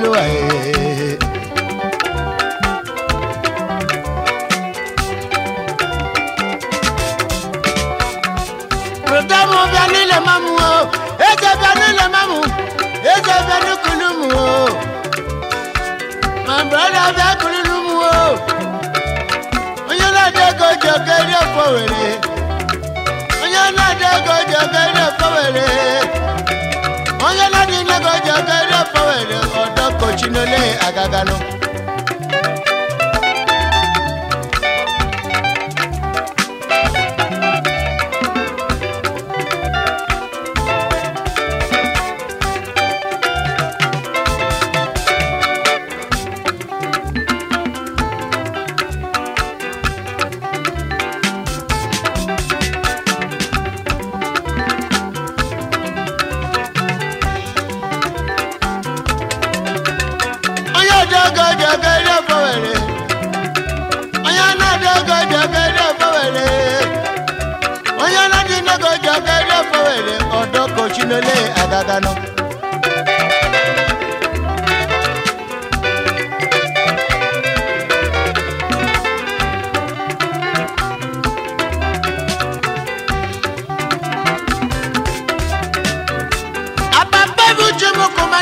elu anyị rụdam bịa n'ile mamụ o eze bịa n'ile mamụ eze bịa n'ukulu o ma o onye na-adị ego ji were onye na-adị ego ji were onye na-adị nego ji were ụbọchị n'ole agagalụ ya dáná.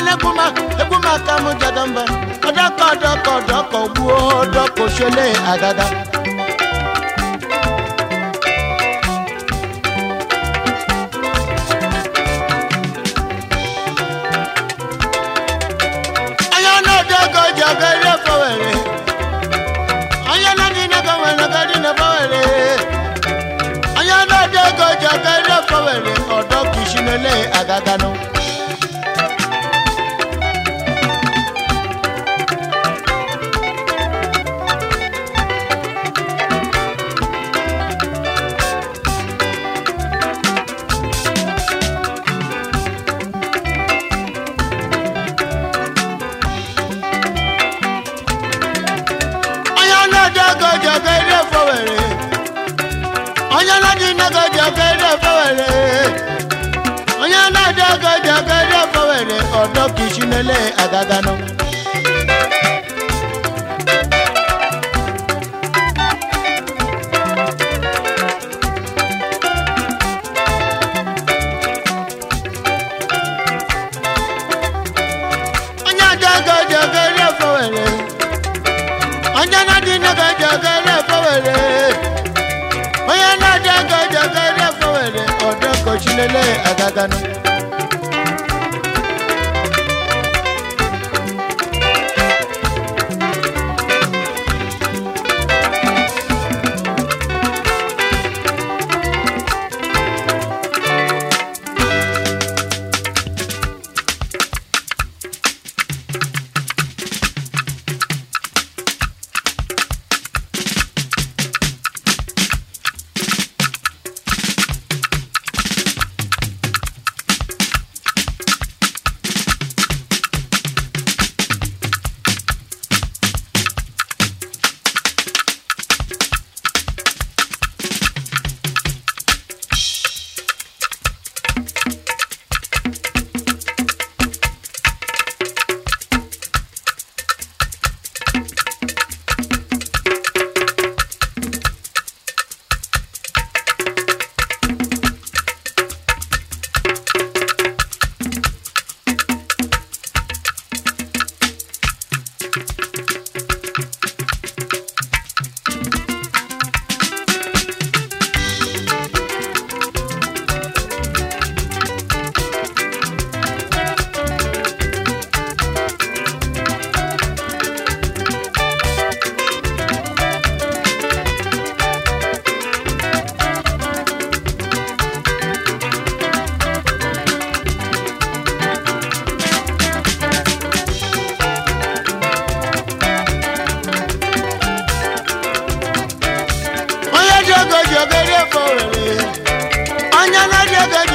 eguma eguma ka m jadamba ọdọkọ ọdọkọ ọdọkọ gbuo ṣẹlẹ̀ lele agaganụ ele agagano onye adịgo jegere fowere onye na-adịgo jegere fowere onye na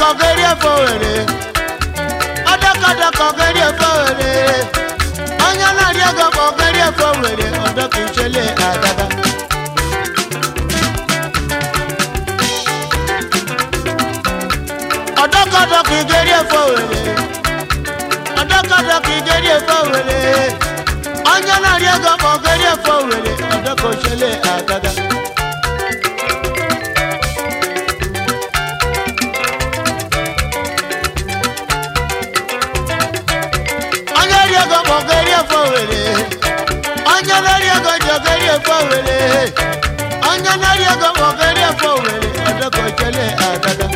kọgeri efe were ọdọkọdọ kọgeri efe were onye na-arị ego kọgeri efe were ọdọka ichele agada ọdọkọdọ kọgeri efe were ọdọkọdọ kọgeri efe were onye na-arị ego kọgeri efe were ọdọka ichele agada ogeri efo were onye nari ego ma ogeri efo were odokochele agaga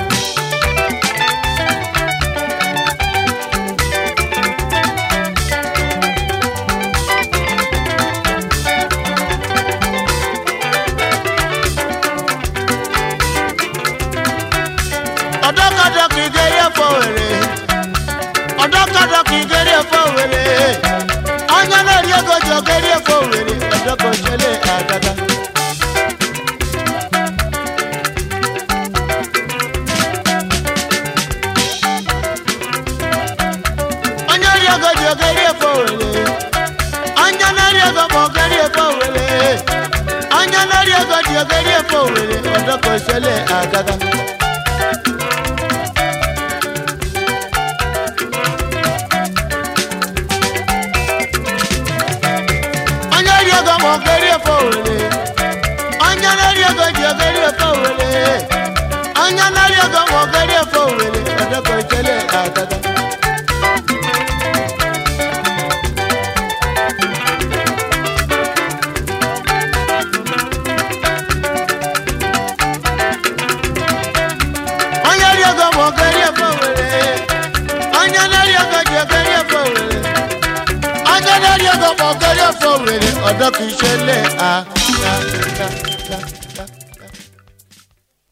ọdọkọdọkọ ọdọkọdọkọ igeri efo were onye nari ego ji ogeri efo ego ego were onye nari ego ji ogeri ego onye ri ego ma ogeri ego were onye nari ọ̀gẹ́rẹ́ ọ̀fọ̀ wèrè ọ̀dọ́ kì ṣe lé